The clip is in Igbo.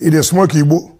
ị dị smoke igbo